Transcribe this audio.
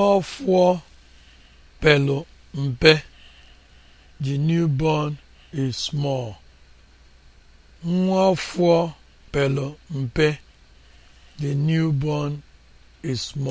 Nwafor pelu mpe. The newborn is mpe. The newborn is small.